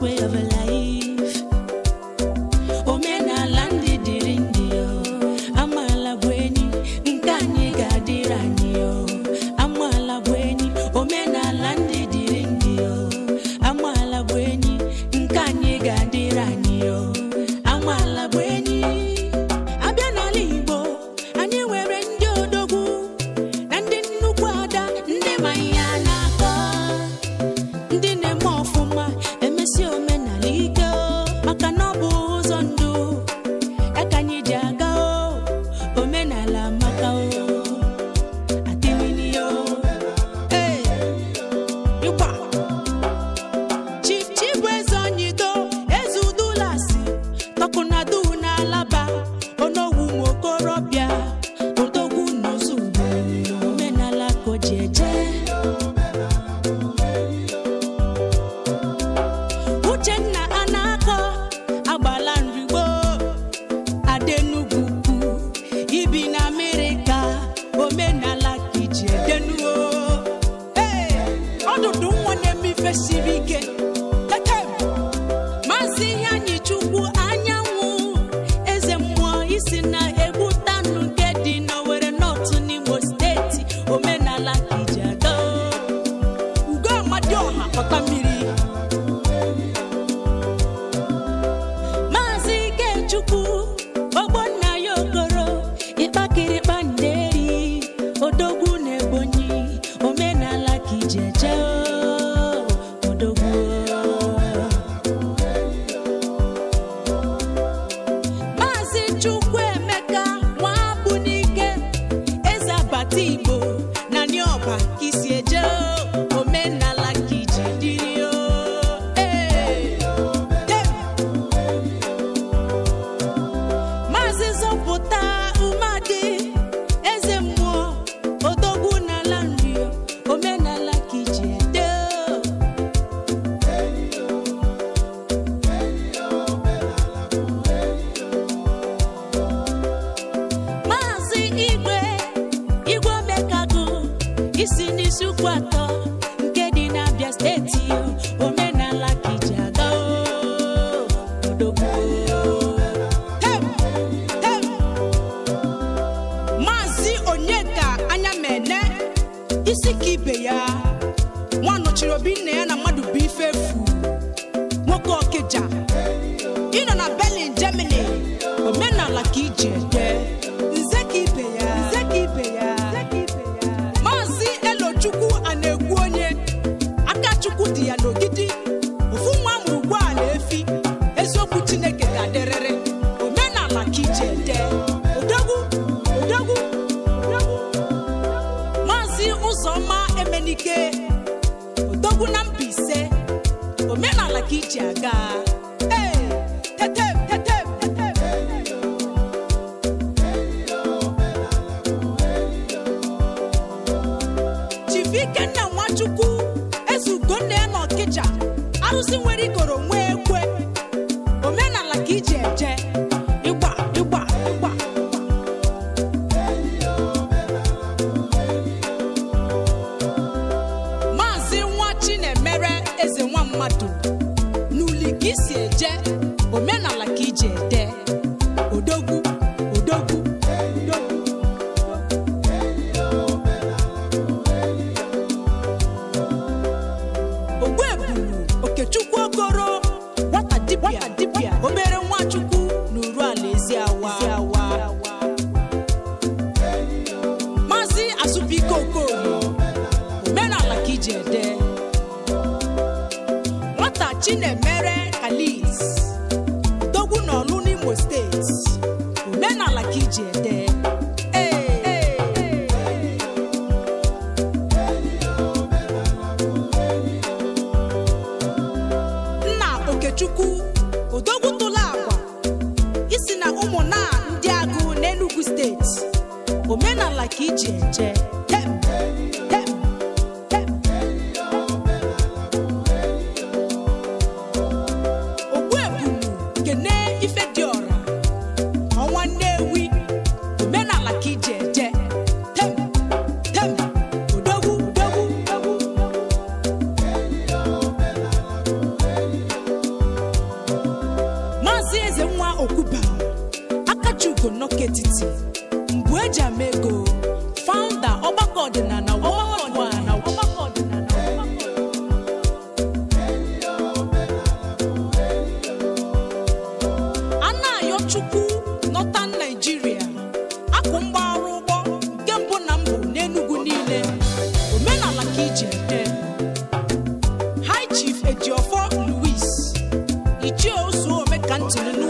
way of ọdụdụ nwa na siri ike ikenna nwachukwu ezugo nne ya na Ọkịcha, arụsị nwere ikoro nwee chinemere mgbe eji ama ego founder ọgbakọ ọdịnala Chukwu Northern naijiria akụ mgbagharụ ụgbọ nke mbụ na mbụ n'Enugu niile omenala ka iji ete High Chief Louis Ichie Ozuome Kantini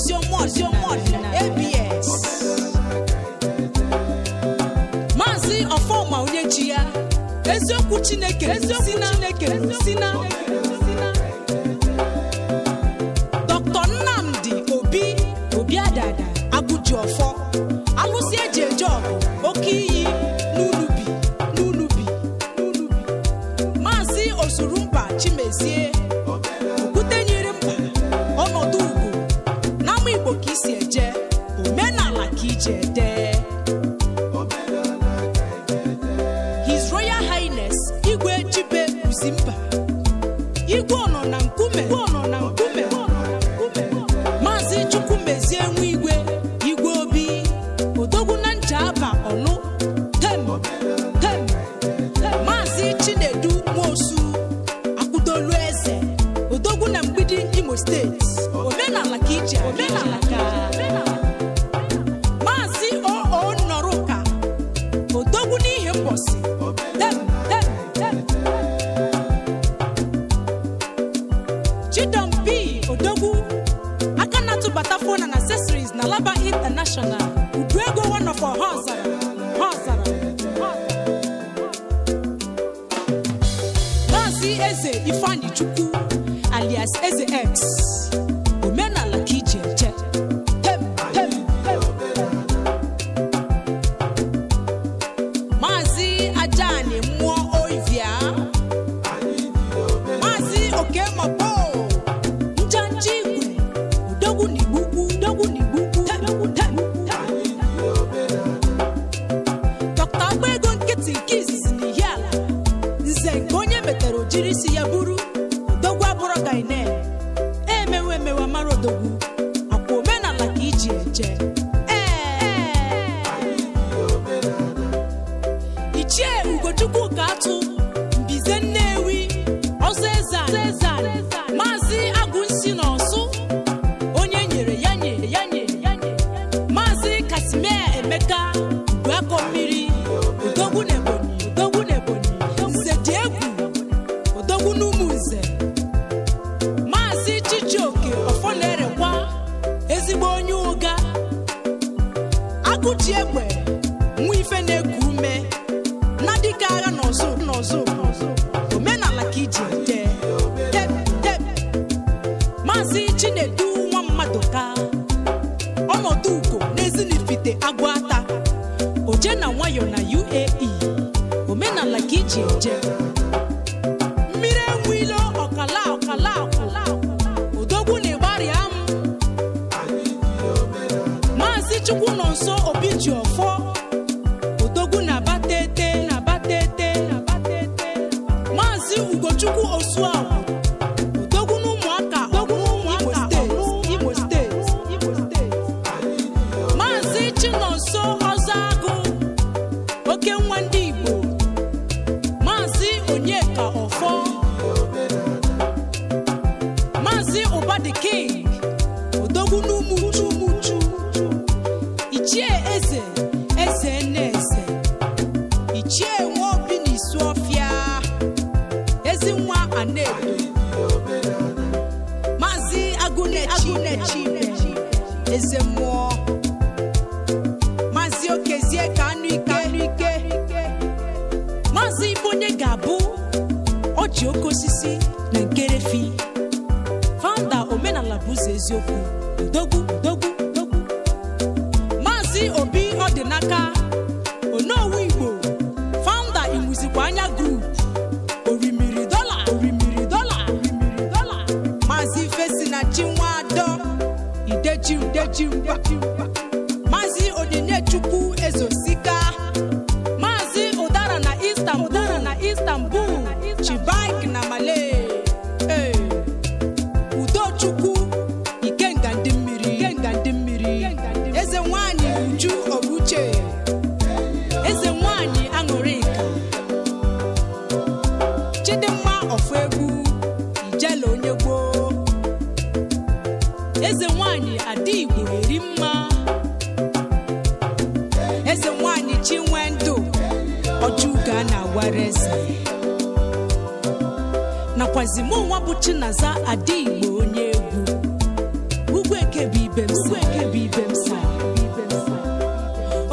ABS. Maazị Ọfọma ya, eziokwu Chineke, eziokwu Chineke, na Dr. Nnamdi Obi Obiadada Abụji Ọfọ, alụsị eji eje ọgụ, oke iyi n'Ulubi, n'Ulubi, n'Ulubi. Maazị Osurumba Chimezie Calabar International Uduego one of our ha zara ha Eze Ifeanyi Chukwu alias Eze X ifechukwu nọ nso obi ji ọfọ odogwu na-abata na-abata ete maazị ugochukwu osuagwu odogwu na ụmụaka Imo steeti maazị chinonso ọzọ agụ oke nwa ndị igbo maazị onyeka ọfọ maazị ụbadiking odogwu n'ụmụ ichie eze eze eze ichie nwe obi na isu ọfịa ezi nwa anaedo maazị agụnechi eze okezie ka onye ga-abụ ọji oke osisi na nkerefi fanda omenala bụ ụzọ eziokwu ndogwu ndị Obi Odinaka Onowu Igbo faụnda Imuzikwa Anya Group orimiri dola orimiri dola orimiri dola Maazị Fesina Chinwado idejim dejim ada igbo eri mma eze nwanyị chi nwee ndụ ọjụga na awara eze nakwazi mụ nwa bụ chinaza ada igbo onye egwu ugwu eke bụ ibe m eke ibe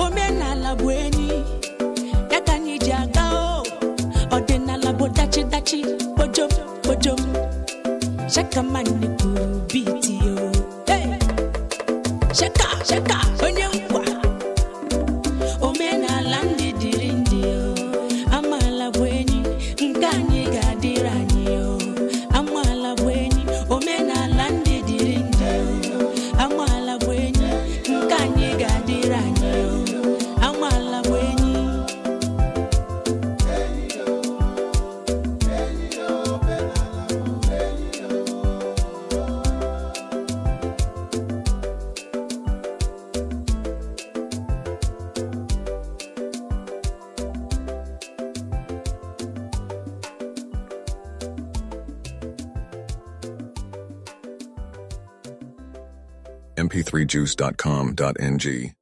omenala bụ enyi ya ka anyị ji aga ọdịnala bụ dachi dachi kpojom kpojom shakaman cheka cheka p 3 juicecomng